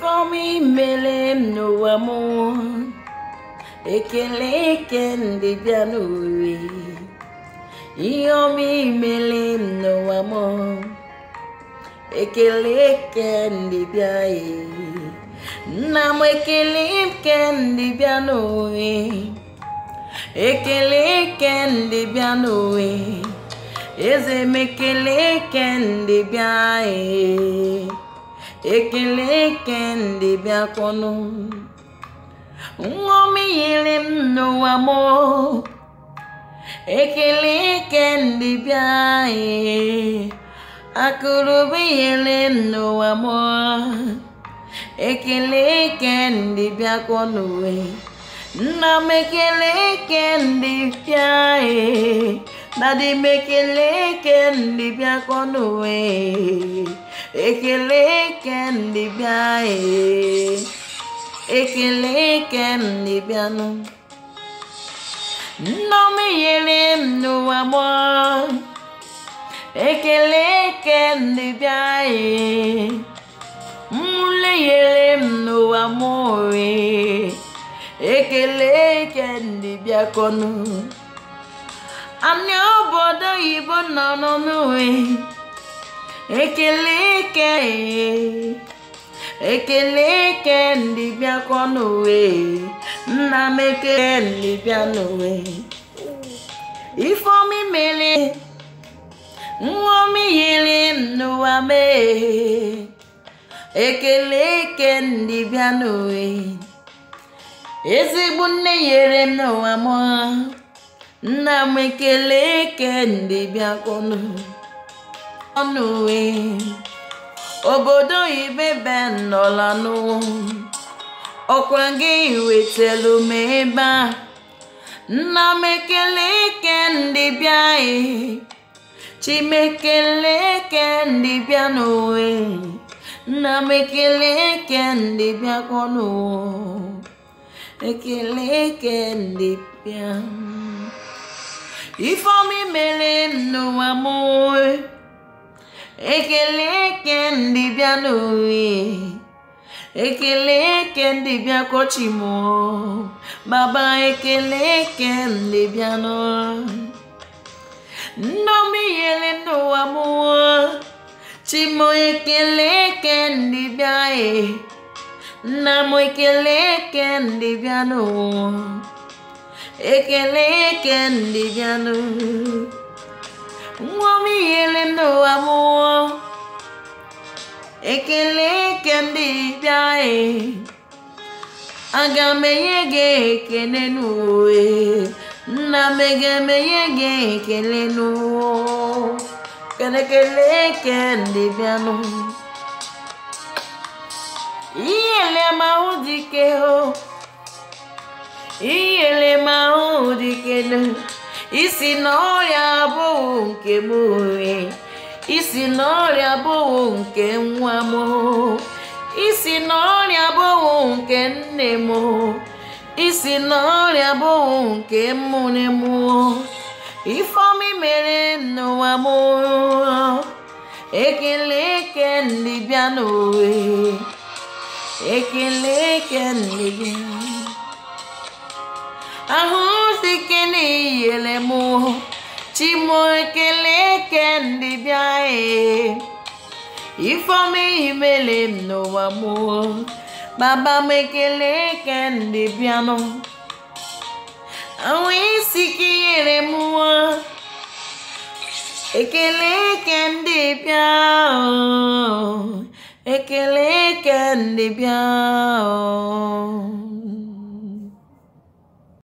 For me, m n'ụwa mụ ekele eke ndị bịa n'ụwa ihe ọma imele m n'ụwa mụ ekele eke ndị bịa nna m ekele eke ndị bịa ekele eze ekele kendi bịakwanụ nṅomi yiri m n'ụwa m ekele kendi bịa akụrụbi yiri m n'ụwa m ekele kendi bịakwanụ nna m ekele kendi bịa dadi m ekele kendi bịakwanụ ekele bịa ee ekele kendịbịanụ nneọma nyere m n'ụwa gbọ ekele kendịbịa ee mmụle nyere m n'ụwa mụ ee ekele kendịbịa kọnụ Anya obodo oyibo nọ n'ụwa ekele eke ekele eke ndị bịakọ n'uwe nna m ekele ndị bịa n'uwe ifeomi mere nwomi yiri n'ụwa mee ekele eke ndị bịa n'uwe ezigbo nne nyere m n'ụwa m nna m ekele ndị ndị bịakọ n'uwe onuwe uwe obodo ibebe nọlanụ ọkwa gị wetelu m ebe a nna m ekele eke ndị bịa chimekele eke ndị bịa n'uwe nna m ekele ndị bịa konu, ekele eke ndị bịa ifeọma ekele kendịbịa n'owe ekele kendịbịa kochimo baba ekele kendịbịa nnomiyele n'ụwa mụọ chimo ekele kendịbịa e nna m ekele kendịbịa n'ụwa ekele kendịbịa n'ụwa nwa m iyele n'ụwa mụọ ekele ke ndị bịa anyị aga m enye gị ekele n'uwe nna m ga-emenye gị ekele n'ụwa kelekele ke ndị bịanụ ihe elemahụ dike ho ihe elemahụ dike isi na ọrịa abụghị nke m isi na ọrịa abụghị nke nwa m isi na ọrịa abụghị nke nne m isi na ọrịa abụghị nke mmụne m ifeomi mere n'ụwa m ekele eke ndị bịa n'owe ekele eke ndị bịa ahụ sikene iyele m ci mooy kele kendi biaye ifome imele no amour baba mekele kendi biano awi sikiyere muwa ekele kendi biao ekele kendi biao